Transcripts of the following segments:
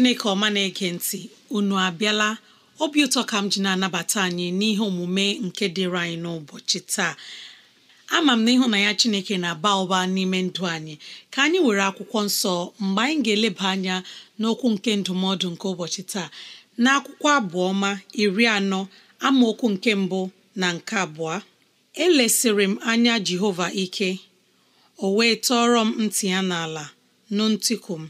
chineke ọma na-ege ntị unu abịala obi ụtọ ka m ji na-anabata anyị n'ihe omume nke dịrị anyị n'ụbọchị taa ama m na ịhụ na ya chineke na-aba ụba n'ime ndụ anyị ka anyị were akwụkwọ nsọ mgbe anyị ga-eleba anya n'okwu nke ndụmọdụ nke ụbọchị taa na akwụkwọ abụọma iri anọ amaokwu nke mbụ na nke abụọ elesịrị m anya jehova ike o wee tọọrọ m ntị ya n'ala nụ ntịkụ m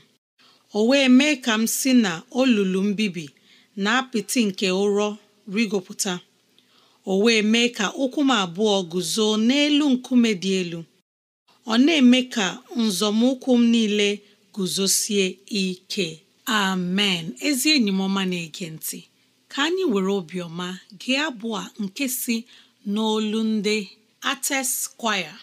o wee mee ka m si na olulu mbibi na apịtị nke ụrọ rigopụta o wee mee ka ụkwụ m abụọ guzo n'elu nkume dị elu ọ na-eme ka nzọmụkwụ m niile guzosie ike amen ezi enyi m ọma na-ege ntị ka anyị were obiọma gee abụọ nke si n'olu ndị Artist kwaya.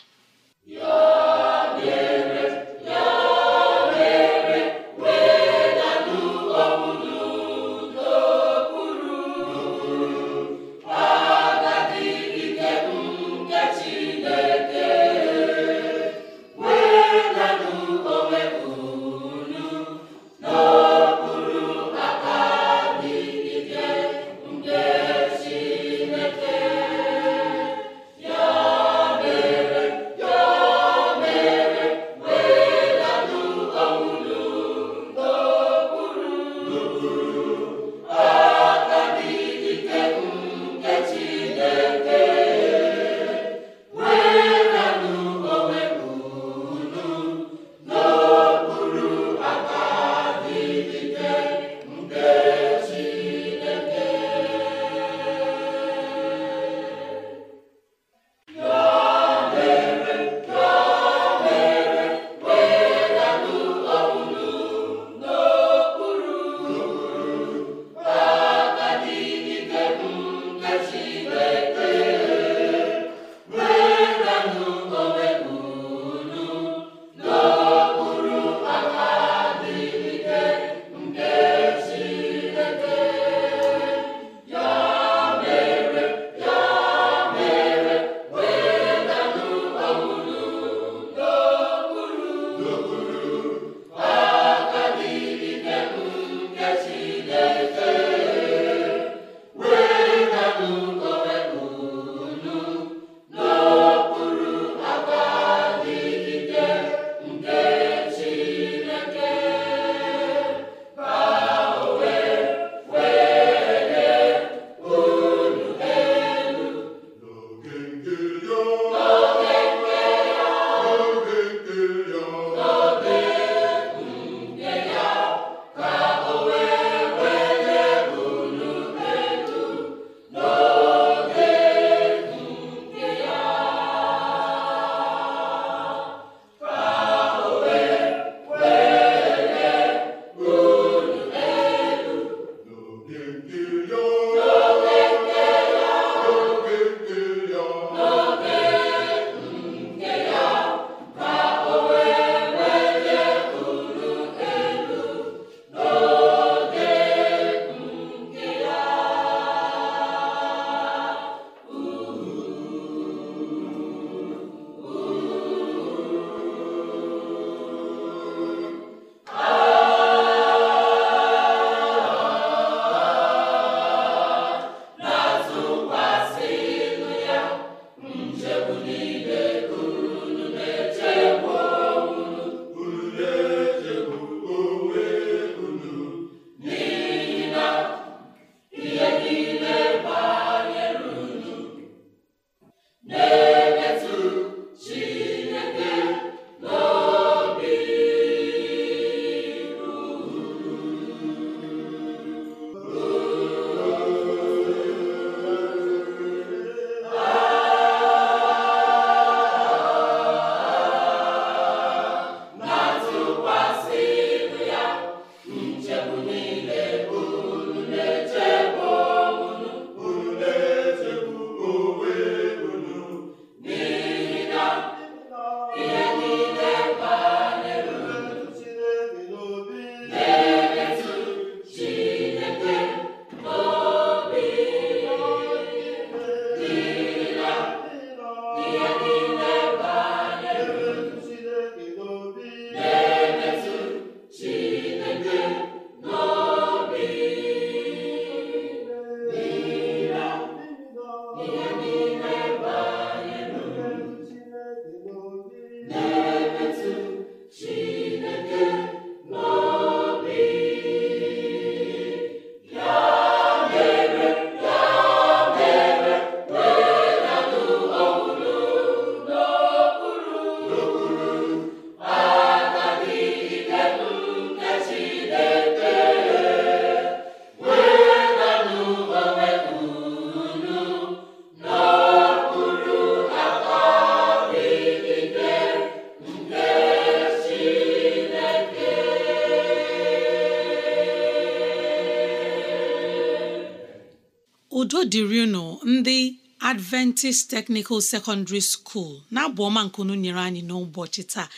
adventist technical secondary school na-abụ ọma nkunu nyere anyị n'ụbọchị taa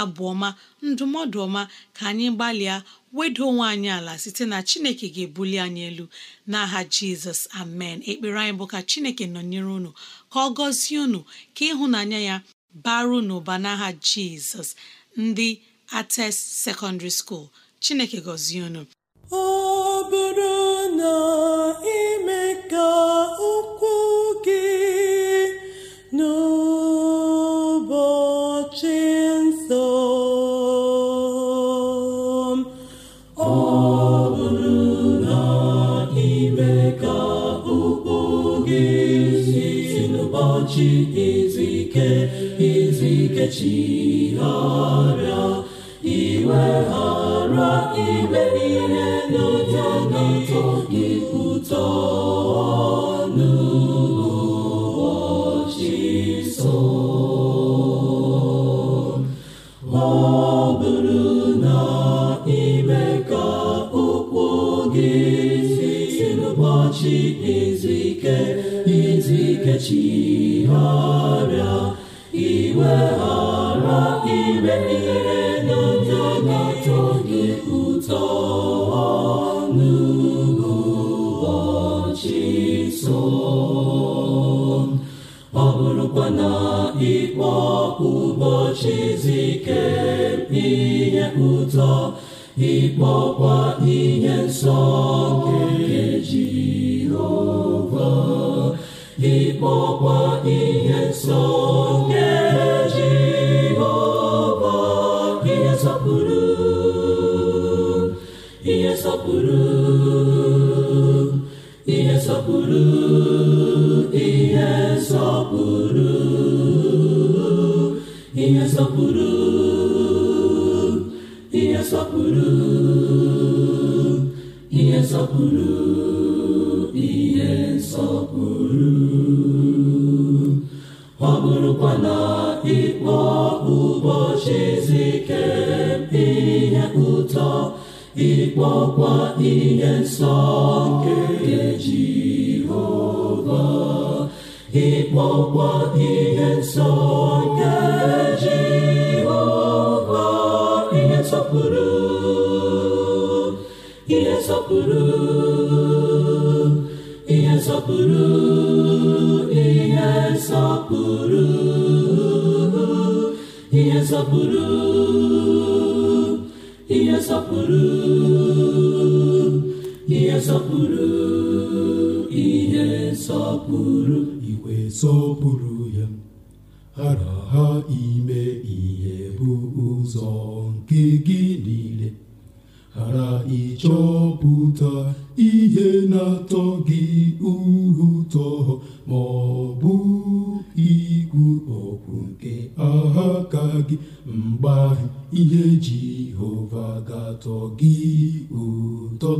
Abụọma, ndụmọdụ ọma ka anyị gbalịa wedo onwe anyị ala site na chineke ga-ebuli anyị elu n'aha jizọs amen ekpere anyị bụ ka chineke nọnyere unu ka ọ gọzie unu ka ịhụnanya ya baru n'ụba n'aha jizọs ndị ates secondary school chineke gọzie unu ọ bụrụ na ime ka ụkwụ gị n'ụbọchị nsọ ọ bụrụ na ime ka ụkwụ gị n'ụbọchị izu ike chigharịa iwe ha mma ime ihe n'ụjọ na-atọ gị ụtọ n'ụbọchị so ọ bụrụ na ime ka ụkwụ gị si ezike izu ike chigharịa na ikpọ ụbọchị zike ihe ụtọ ịkpọkwa ihe nsọ nke Jehova ịkpọkwa ihe nsọ nke Jehova ihe nsọpụrụ ihe nsọpụrụ ihe na-esọpụrụ ihe nsọpụrụ ihe nsọpụrụ ihe nsọpụrụ ọ bụrụkwa ịkpọ ụbọchị izu ike ihe ụtọ ịkpọkwa ihe nsọ nke Jehova ịkpọkwa ihe nsọ nsọpụrụ ihe nsọpụrụ ihe nsọpụrụ ihe nsọpụrụ ihe nsọpụrụ ihe nsọpụrụ ihe na-atọ gị ụtọ ma ọ bụ ikwu okwu nke aka gị mgbe ahụ ihe Jehova ga-atọ gị ụtọ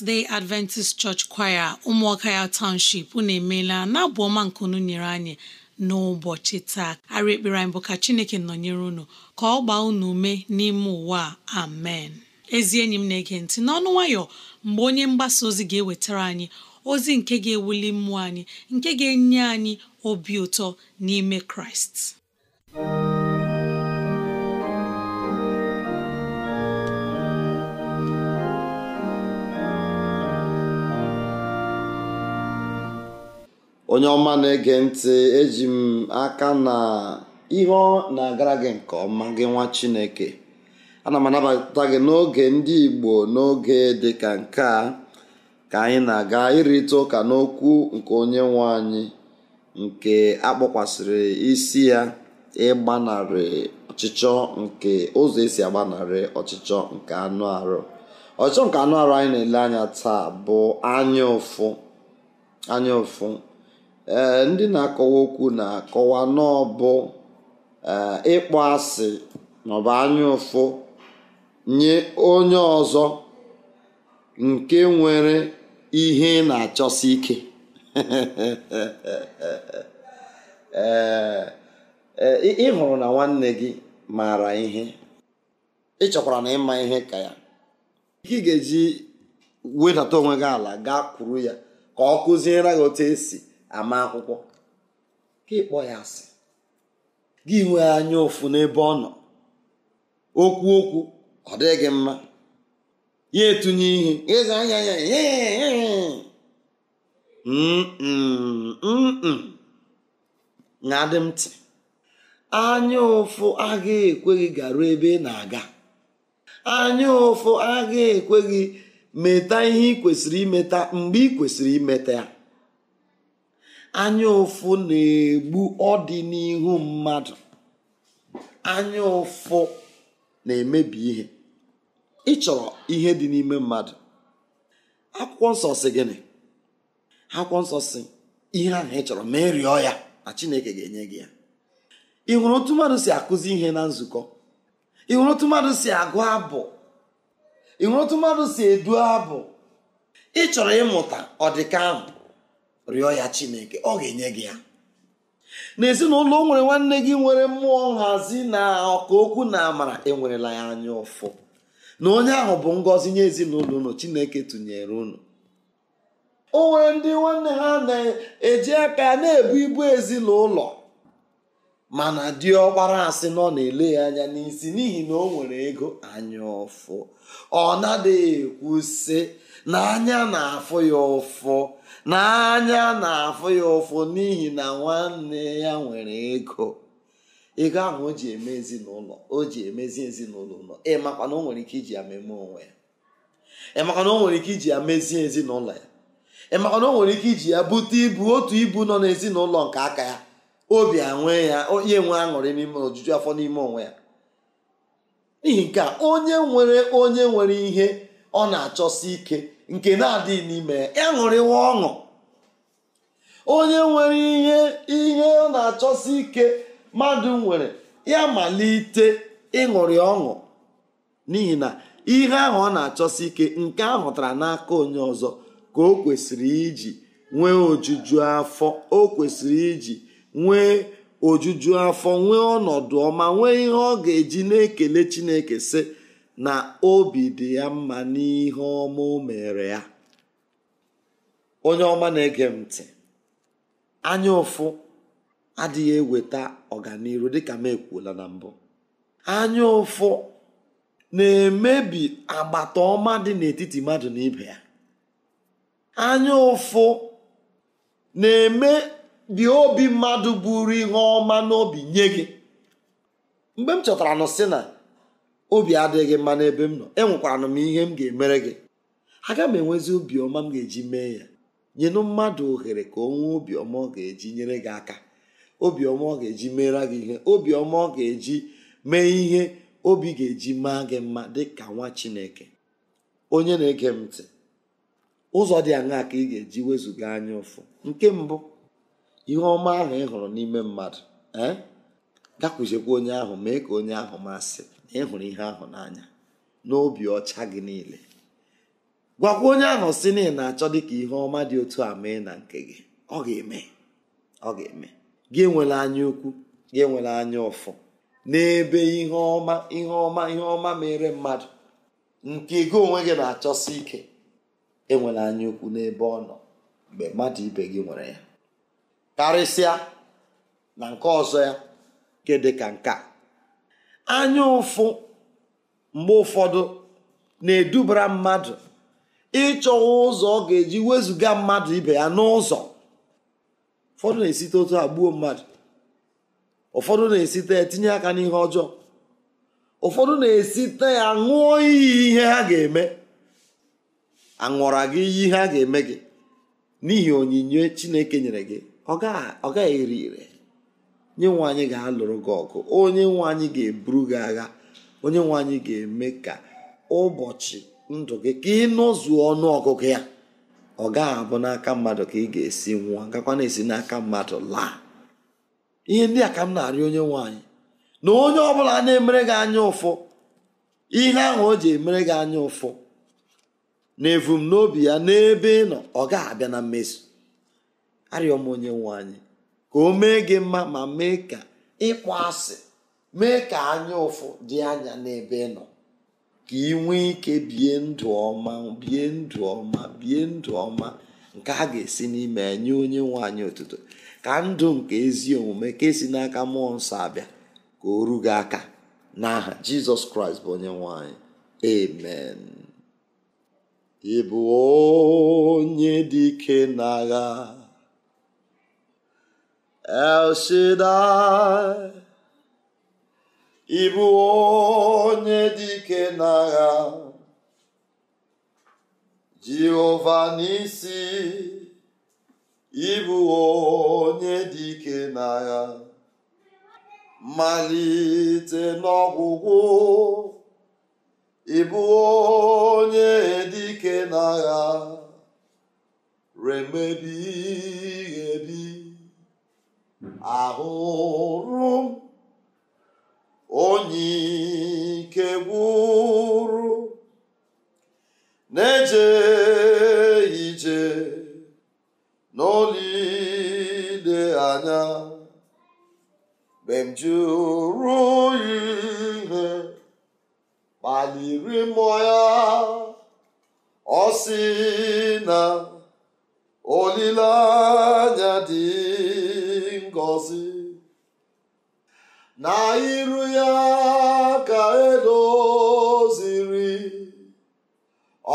seventh day adventist church choir ụmụọka ya township unu emeela na-abụ ọma unu nyere anyị n'ụbọchị taa arị ekpere anyị bụ ka chineke nọnyere unu ka ọ gbaa unu ume n'ime ụwa amen ezi enyi m na-ege ntị n'ọnụ nwayọ mgbe onye mgbasa ozi ga-ewetara anyị ozi nke ga-ewuli mmụọ anyị nke ga-enye anyị obi ụtọ n'ime kraịst onye ọma na-ege ntị eji m aka na ihe na-agara gị nke ọma gị nwa chineke ana m anabata gị n'oge ndị igbo n'oge dị ka nke a ka anyị na-aga ịrịta ụka n'okwu nke onye nwe anyị nke akpọkwasịrị isi ya ịgbanarị ọchịchọ nke ụzọ esi agbanarị ọchịchọ nke anụ arụ ọchịchọ nke anụ arụ anyị na-ele anya taa bụ anya ụfụ anya ụfụ ndị na-akọwa okwu na-akọwa n'ọbụ e, ịkpọ asị maọbụ anya ụfụ nye onye ọzọ nke nwere ihe na-achọsi ike e, ị na nwanne gị maara ihe ị chọkwara na ịma ihe ka ya ị ga-eji wedata onwe gị ala gaa kwuru ya ka ọ kụziere gị otu esi ama akwụkwọ ka ịkpọ ya asị gị nwee anya ụfụ n'ebe ọ nọ okwu okwu ọ dịghị mma ya etunye ihe ịza anya ya na-adị m ntị anya ụfụ agaghị ekweghị gị garuo ebe ị na-aga anya ụfụ agaghị ekweghị meta ihe ị kwesịrị imeta mgbe ị kwesịrị imeta ya anya ụfụ na-egbu ọdịnihu mmadụ anya ụfụ na-emebi ihe ịchọrọ ihe dị n'ime mmadụ akwụkwọ nsọ si gịnị akwụkwọ nsọ si ihe ahụ ị chọrọ ma ị rịọ ya na chineke ga-enye gị ya ị hụrụ otu mmadụ si akụzi ihe na nzukọ ị hụrụ otu mmadụ si agụ abụ ị hụrụ otu mmadụ si edu abụ ị chọrọ ịmụta ọdịka ahụ rịọ ya chineke ọ ga-enye gị ya n'ezinụlọ o nwere nwanne gị nwere mmụọ nhazi na ọka okwu na amara enwerela ya anya ụfụ na onye ahụ bụ ngọzi nye ezinụlọ unu chineke tụnyere unu o nwere ndị nwanne ha na-eji aka ya na-ebu ibu ezinụlọ mana dị ọkpara asị na ọ na-ele ya anya n'isi n'ihi na o nwere ego anya ụfụ ọ na-adịghị ekwu sị na anya na-afụ ya ụfụ n'anya na-afụ ya ụfụ n'ihi na nwanne ya nwere ego ego ahụ o ji eme ezinụlọ o ji emezi ezinụlọ ụlọ ịmakwa na o nwere ike iji ya meme onwe ya ịmakwa na o nwere ike iji ya mezie ezinụlọ ya ịmakwa na o nwere ike iji ya bute ibu otu ibu nọ n'ezinụlọ nke aka ya obi anwe ya onye nwe aṅụrị n'ime ojuju afọ n'ime onwe ya n'ihi nke onye nwere onye nwere ihe ọ na-achọsi ike nke na-adịghị n'ime ya ṅụrịwa ọṅụ onye nwere ihe ihe ọ na-achọsi ike mmadụ nwere ya malite ịṅụrị ọṅụ n'ihi na ihe ahụ ọ na-achọsi ike nke a hụtara n'aka onye ọzọ ka o kwesịrị iji nwee ojuju afọ o kwesịrị iji nwee ojuju afọ nwee ọnọdụ ọma nwee ihe ọ ga-eji na-ekele Chineke sị na obi dị ya mma n'ihe ọma o mere ya onye ọma na-ege m ntị anya ụfụ adịghị eweta ọganihu dịka m ekwuola na mbụ anya ụfụ na-emebi agbata ọma dị n'etiti mmadụ na ibe ya anya ụfụ na-emebi obi mmadụ buru ihe ọma n'obi nye gị mgbe m chọtara nụ sị na obi adịghị mma n'ebe m nọ enwekwara m ihe m ga-emere gị aga m enwezi obiọma m ga-eji mee ya nyenụ mmadụ ohere ka o nwee obiọma ọ ga-eji nyere gị aka obiọma ọ ga-eji meere gị ihe obiọma ọ ga-eji mee ihe obi ga-eji maa gị mma dị ka nwa chineke onye na-ege m ntị ụzọ dị aṅaa ka ị ga-eji wezụga anya ụfụ nke mbụ ihe ọma ahụ ị hụrụ n'ime mmadụ ee eh? gakwuziekwa onye ahụ mee ka onye ahụ masị na ị hụrụ ihe ahụ n'anya n'obi ọcha gị niile gwakwa onye ahụ si na ị na-achọ dịka ihe ọma dị otu a mee na nke gị ọ ga-eme ọ ga-eme gị enwela anya ukwu gị enwela anya ụfụ n'ebe ihe ọma ihe ọma ihe ọma mere mmadụ nke gị onwe gị na-achọsi ike enwela anya ukwu n'ebe ọ nọ mgbe mmadụ ibe gị nwere ya karịsịa na nke ọzọ ya nke ka nke a anya ụfụ mgbe ụfọdụ na-edubara mmadụ ịchọ ụzọ ọ ga-eji wezụga mmadụ ibe ya n'ụzọ ụfọdụ na-esite otu a gbuo mmadụ ụfọdụ na-esite etinye aka n'ihe ọjọọ ụfọdụ na-esite ya ṅụọ iyi ihe ha ga-eme aṅụra gị iyi ihe ha ga-eme gị n'ihi onyinye Chineke nyere gị ọ gaghị eri ire onye nwe anyị ga-alụrụ gị ọgụ onye nwe anyị ga-eburu gị agha onye nwe anyị ga-eme ka ụbọchị ndụ gị ka ị nọzuo ọnụ ọgụgụ ya ọ gaghị abụ n'aka mmadụ ka ị ga-esi nwụọ gakwa na-esi n'aka mmadụ laa ihe ndị a ka m na arịa onye nwe anyị na onye ọ bụla na-emere gị anya ụfụ ihe ahụ o ji emere gị anya ụfụ na evumnobi ya n'ebe ị nọ ọ gaghị abịa na mmezu arịọ m onye nwe anyị ka o mee gị mma ma mee ka ịkpọ asị mee ka anya ụfụ dị anya n'ebe ị nọ ka ị nwee ike bie ndụ ọma bie ndụ ọma bie ndụ ọma nke a ga-esi n'ime enye onye nwanyị anyị otuto ka ndụ nke ezi omume ka esi n'aka mmụọ nsọ abịa ka o ru aka n'aha jizọs kraịst bụ onye nwanyị ị bụ onye dị ike n'agha El Shaddai ị bụ onye dike n'agha Jehova n'isi ị bụ onye dike n'agha malite n'ọgwụgwụ ị bụ onye dike n'agha remebi ebi ahụrụ onye ike gwụrụ na-eje ije n'olile anya mgbe jụrụ ihe kpaliri mmụọ ya ọ si na olileanya dị na iru ya ka edoziri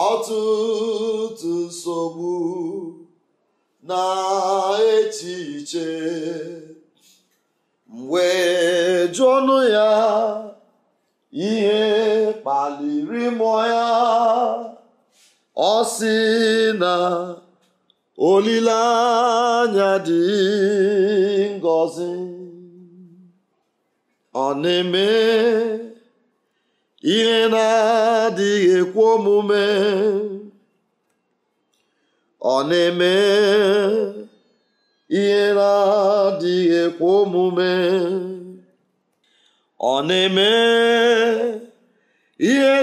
ọtụtụ nsogbu na echiche mgbe jụọnụ ya ihe kpaliri mmụọ ya ọ sị na olileanya dị ngọzi ọ na-eme ihe na-adịghị ekwe adịghị omume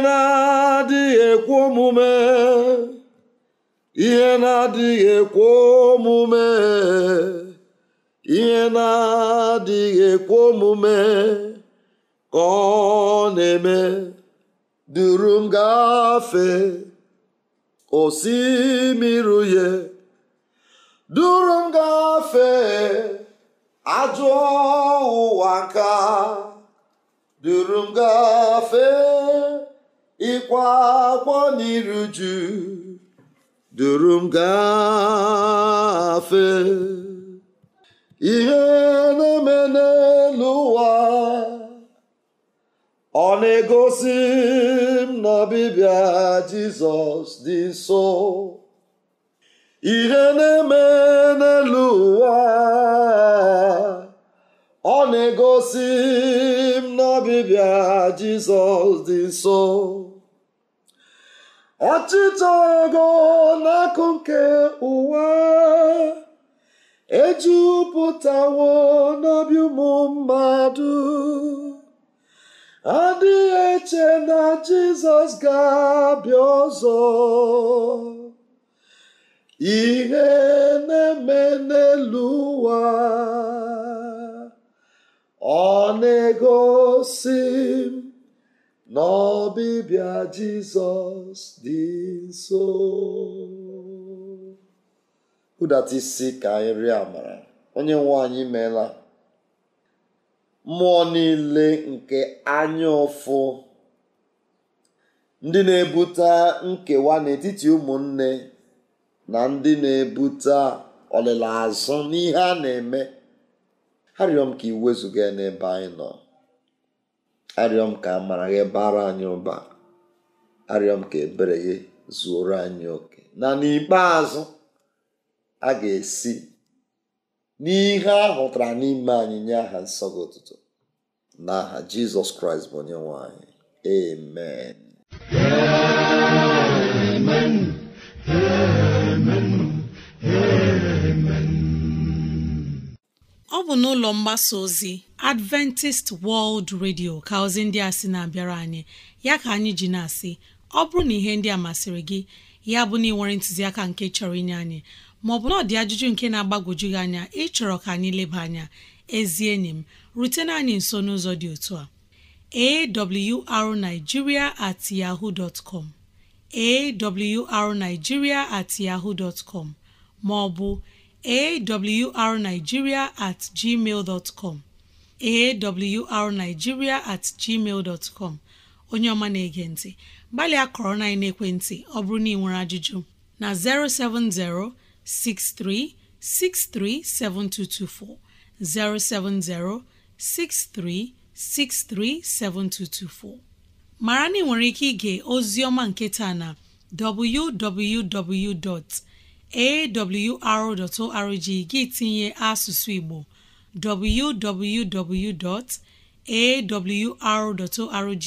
na adịghị omume ihe omume ihe na-adịghị ekwe omume ka ọ na-eme duru m osimiri uhie duru m ajụọ ajọ ụwa nka duru m gafee ịkwa n'iru ju duru m ihe na-eme n'elu ụwa ọ na-egosi m na ọbịbịa Jizọs dị nso ihe na-eme ọchịchọ ego n'akụ nke ụwa ejupụtawo n'obi ụmụ mmadụ adịghị eche na jizọs ga-abịa ọzọ ihe na-eme n'elu ụwa ọ na-egosi n'ọbịbịa jizọs dị nso kụdata isi ka anyị rịọ amara onye nwe anyị meela mmụọ niile nke anya ụfụ ndị na-ebute nkewa n'etiti ụmụnne na ndị na-ebute ọlịla azụ n'ihe a na-eme arịọm ka ị wezụga n'ebe anyị nọ arịọm ka amara gị bara anyị ụba arịọm ka ebere gị zuoro anyị oke na n'ikpeazụ a ga-esi n'ihe a hụtara n'ime anyị nye aha nsọ gị ụtụtụ na aha jizọs kraịst bụ onye nwanyị. anyị ọ bụ n'ụlọ mgbasa ozi adventist world radio ka ozi ndị a si na-abịara anyị ya ka anyị ji na-asị ọ bụrụ na ihe ndị a masịrị gị ya bụ na ị nwere ntụziaka nke chọrọ inye anyị maọbụ na ọ dị ajụjụ nke na-agbagwoju gị anya ịchọrọ ka anyị leba anya ezi enyi m rutena anyị nso n'ụzọ dị otu a awrnigeria at yahoo dot com at maọbụ arigiria at com at gmail onye ọma na-ege ntị gbalịa kọrọ na ekwentị ọ bụrụ na ị nwere ajụjụ na 070 6363 7224 070 6363 7224 mara na ị nwere ike ige oziọma nketa na www.awr.org gị tinye asụsụ Igbo www.awr.org